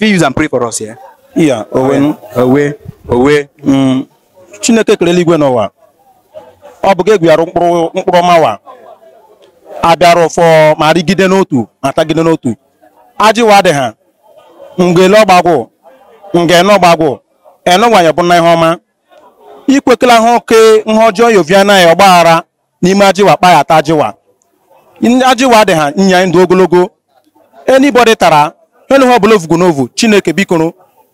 fit use and pray for us here. Yeah, owe owe owe mm. Chineke kere eluigwe n'ụwa ọ bụ gị egwuyara mkpụrụ mkpụrụ ọmawa abịara ụfọ ma rigide n'otu ma tagide n'otu ajịwa dị ha ngele ọgbagwụ ngene ọgbagwụ enụgwanye bụ na ihe ọma ikwekela ha oke nha ọjọọ yoviana ya ọgbaghara n'ime ajịwa kpaghata ajịwa ajịwa dị ha nya ndụ ogologo enibọdị tara onye ihe ọbụla n'ovu chineke bikoro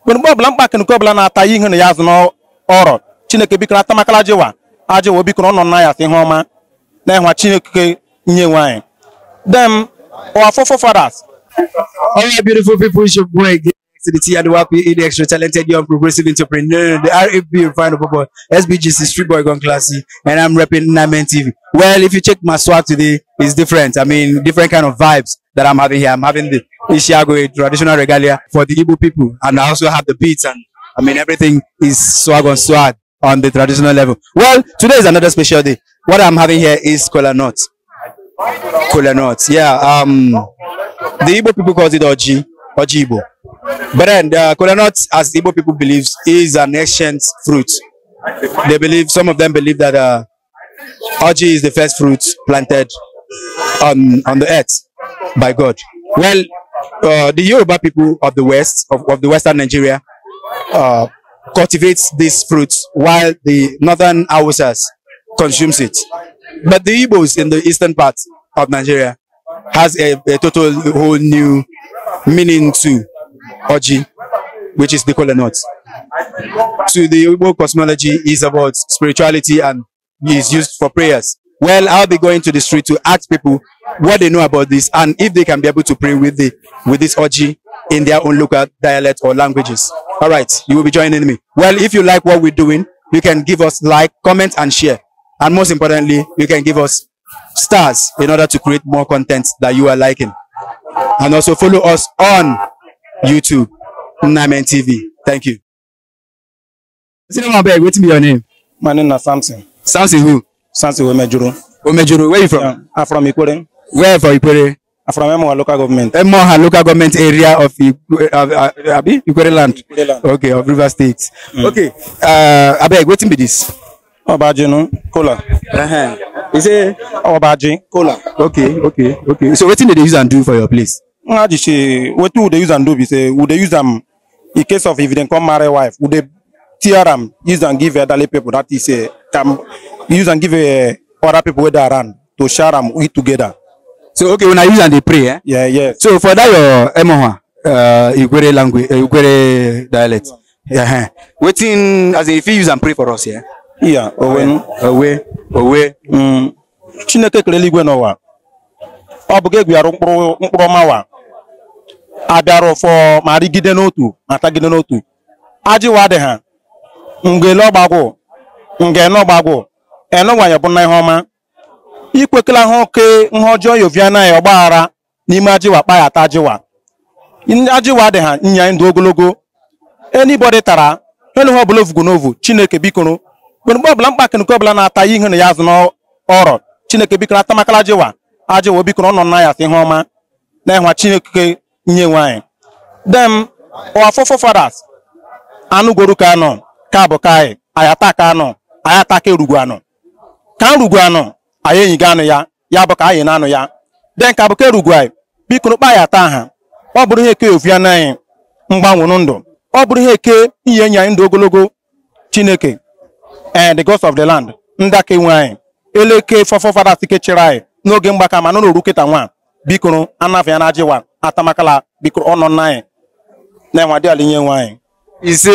mgbe mgbe ọbụla nke ọbụla na-ata ihe na ya azụ n'ọrọ chineke bikoro atamakala jiwa ajịwa ọ nọ na ya ihe ọma na ịhwa chineke nye nwanyị. dem our afọfọ all beautiful people should go again to the Tianuwapi in the Extra Talented Young Progressive Entrepreneur, the RAP Final Football, SBGC Street Boy Gone Classy, and I'm repping Namen TV. Well, if you check my swag today, it's different. I mean, different kind of vibes that I'm having here. I'm having the Ishiago, traditional regalia for the Igbo people, and I also have the beats, and I mean, everything is swag on swag on the traditional level. Well, today is another special day. What I'm having here is cola nuts. Cola nuts, yeah. Um, the Igbo people call it Oji, Oji Igbo. But uh, then the coconut, as Igbo people believe, is an ancient fruit. They believe, some of them believe that uh, is the first fruit planted on, on the earth by God. Well, uh, the Yoruba people of the West, of, of the Western Nigeria, uh, cultivates this fruit, while the Northern Hausas consumes it. But the Igbos in the eastern part of Nigeria has a, a total whole new meaning too. Oji, which is the kola nut. To the Igbo cosmology is about spirituality and is used for prayers. Well, I'll be going to the street to ask people what they know about this and if they can be able to pray with the with this Oji in their own local dialect or languages. All right, you will be joining me. Well, if you like what we're doing, you can give us like, comment, and share. And most importantly, you can give us stars in order to create more content that you are liking. And also follow us on YouTube, Namen TV. Thank you. Sitting my bag, what's your name? My name is Samson. Samson who? Samson Omejuru. Omejuru, where you from? Yeah, I'm from Ikwere. Where from Ikwere? I'm from Emoha local government. Emoha local government area of Ikwere, uh, uh, land. Ikwere land. Okay, of River State. Mm. Okay, uh, abeg, wetin be this? Obaji no, Cola. Uh-huh. You say Obaji, Cola. Okay, okay, okay. So what dey dey use and do for your place? nga just say wetin we dey use am do be say we dey use am in case of if dem come marry wife we dey tear am use am give elderly people that is uh, eh, can use am give uh, other people wey dey around to share am eat together. so okay una use am dey pray eh. yeah yeah. so for that your emoha eh, uh, igwere language uh, dialect yeah. yeah. wetin as in you fit use am pray for us yeah. iya owe owe owe. Mm, chineke kelele igwe n'ụwa ọ bụ gị gwara mkpụrụ mkpụrụ ọma wa abịara ụfọ ma rigide n'otu ma tagide n'otu ajịwa dị ha mgele ọgbagwụ nge bụ na ihe ọma ikwekela ha oke nha ọjọọ yoviana ya ọgbaghara n'ime ajịwa kpaghata ajịwa ajịwa dị ha nya ndụ ogologo enibọdị tara enu ha ọbụla ovugo n'ovu chineke bikoro mgbe ọbụla nke ọbụla na-ata ihe na ya azụ n'ọrọ chineke bikoro atamakala ajịwa ajịwa obikoro ọ na ya sị ihe ọma na ịhwa chineke nyenwe anyị dem our forefathers anụgoro ka anọ ka bụ ka anyị anyị ataka anọ anyị ataka erugwu anọ ka nrugwu anọ anyị enyiga anụ ya ya bụ ka anyị na-anụ ya den ka bụ ka erugwu anyị biko n'ụkpa anyị ata ha ọ bụrụ ihe eke ofu ya n'anyị mgbanwụrụ ndụ ọ bụrụ ihe eke inye enyi anyị ndụ ogologo chineke and eh, the gods of the land ndị aka enwe anyị eleke ike kechiri anyị n'oge mgbaka ma nọ n'oru kịta nwa bikoro ya na ajịwa atamakala bikuru ọnọ nnan na ẹwọn adi alinye wọn. E. Ise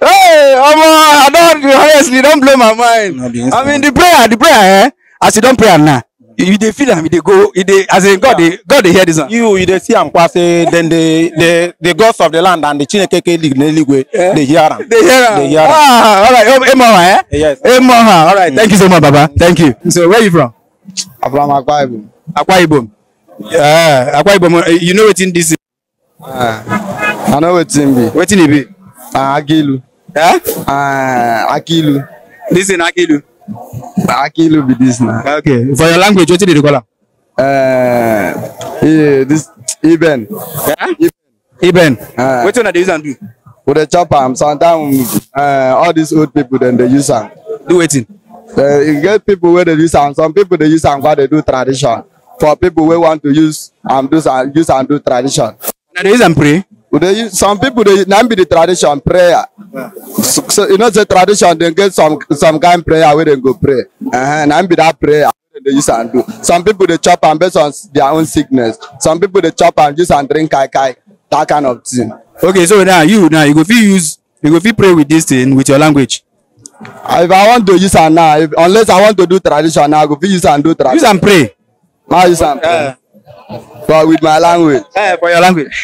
hey omo I don honestly don't blow my mind I mean the prayer the prayer eh as you don pray now you dey feel am you dey go you dey as in God dey God dey hear this one. You you dey see am kwa say dem dey the the gods of the land and the Chinekeke league n'eluigwe eh? dey hear am. Dey hear am. Dey hear am. Ah alright oh, Emoha eh? Yes. Emma, Emoha alright thank you so much baba thank you. So where you from? I'm from Akwa Ibom. Akwa Ibom. Ah, akwa ibom eh, you know what in this? is. Ah, i know what in be. wetin e be. Ah, akilu. Huh? Eh? akilu. This in akilu. akilu be this na. okay for your language what dey dey call am. Uh, this Iben. Yeah? Iben. Uh, wetin una dey use am do. the chopper, chop am sometimes uh, all these old people then they use am. do wetin. Uh, e get people where they use am some people they use am kwa they do tradition for people who want to use and do and use and do tradition. now they use am pray. we use some people they not be the tradition prayer. Yeah. So, so you know the tradition dey get some some kind prayer wey dem go pray uh, na be that prayer They use and do some people they chop and based on their own sickness some people they chop and use and drink kai kai that kind of thing. okay so now you now you go fit use you go fit pray with this thing with your language if i want to use and now if, unless i want to do tradition now i go fit use and do tradition. use and pray. How you sound? Uh, but with my language. Yeah, ờ, for your language.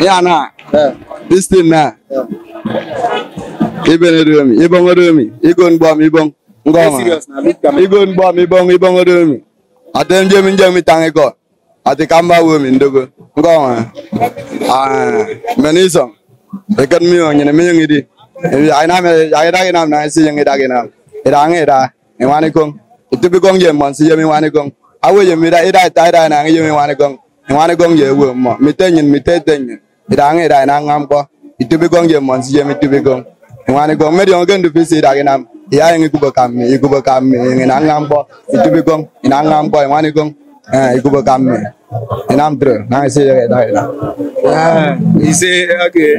yeah, nah. Yeah. This thing now. Nah. Yeah. Ibon Odomi, Ibon Odomi, Igon Bom, Ibon. Igon Bom, Ibon, Ibon Odomi. Atem Jemi Jemi Tangeko. Ati Kamba Wemi Ndogo. Ngoma. Ah, Menisom. Ikan Mio, Nyene Mio Ngidi. Aina me, aina ginam na, isi yang ida ginam ida ngi e ida mi wani kong itu bi kong je mon si je mi wani kong awe je mi da ida ta ida na ngi je mi wani kong mi wani kong je wo mo mi te nyin mi te te nyin ida ngi e ida na ngam ko itu bi kong je mon si je mi tu bi kong mi wani kong me diong ken du fi si da gi nam iya e ngi ku ba kam mi ku ba kam mi ngi na ngam ko itu bi kong ina ngam ko mi wani kong eh ku ba kam mi Inam true. Now I say that. Ah, okay.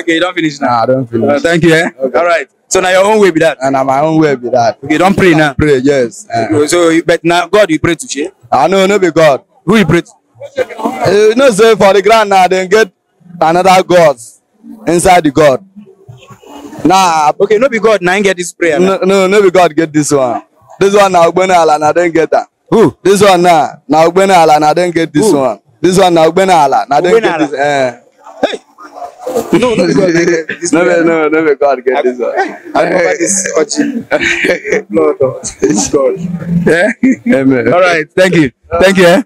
Okay, don't finish now. I ah, don't finish. Uh, thank you. Eh? All right. So now your own way be that. And now my own way be that. Okay, don't pray now. Pray, yes. Uh. So, but now God you pray to share? I know, no be God. Who you pray to? You eh, know, say for the ground now, then get another God inside the God. Nah. Okay, no be God now get this prayer. No, no, no be God get this one. This one now Ugbene Ala now then get that. Who? This one now now Ugbene Ala now then get this Who? one. This one now Ugbene Ala now then get this. Eh. No, no, no, no, no, no, God, get this one. This no, it's God. Amen. All right, thank you, thank you. Eh?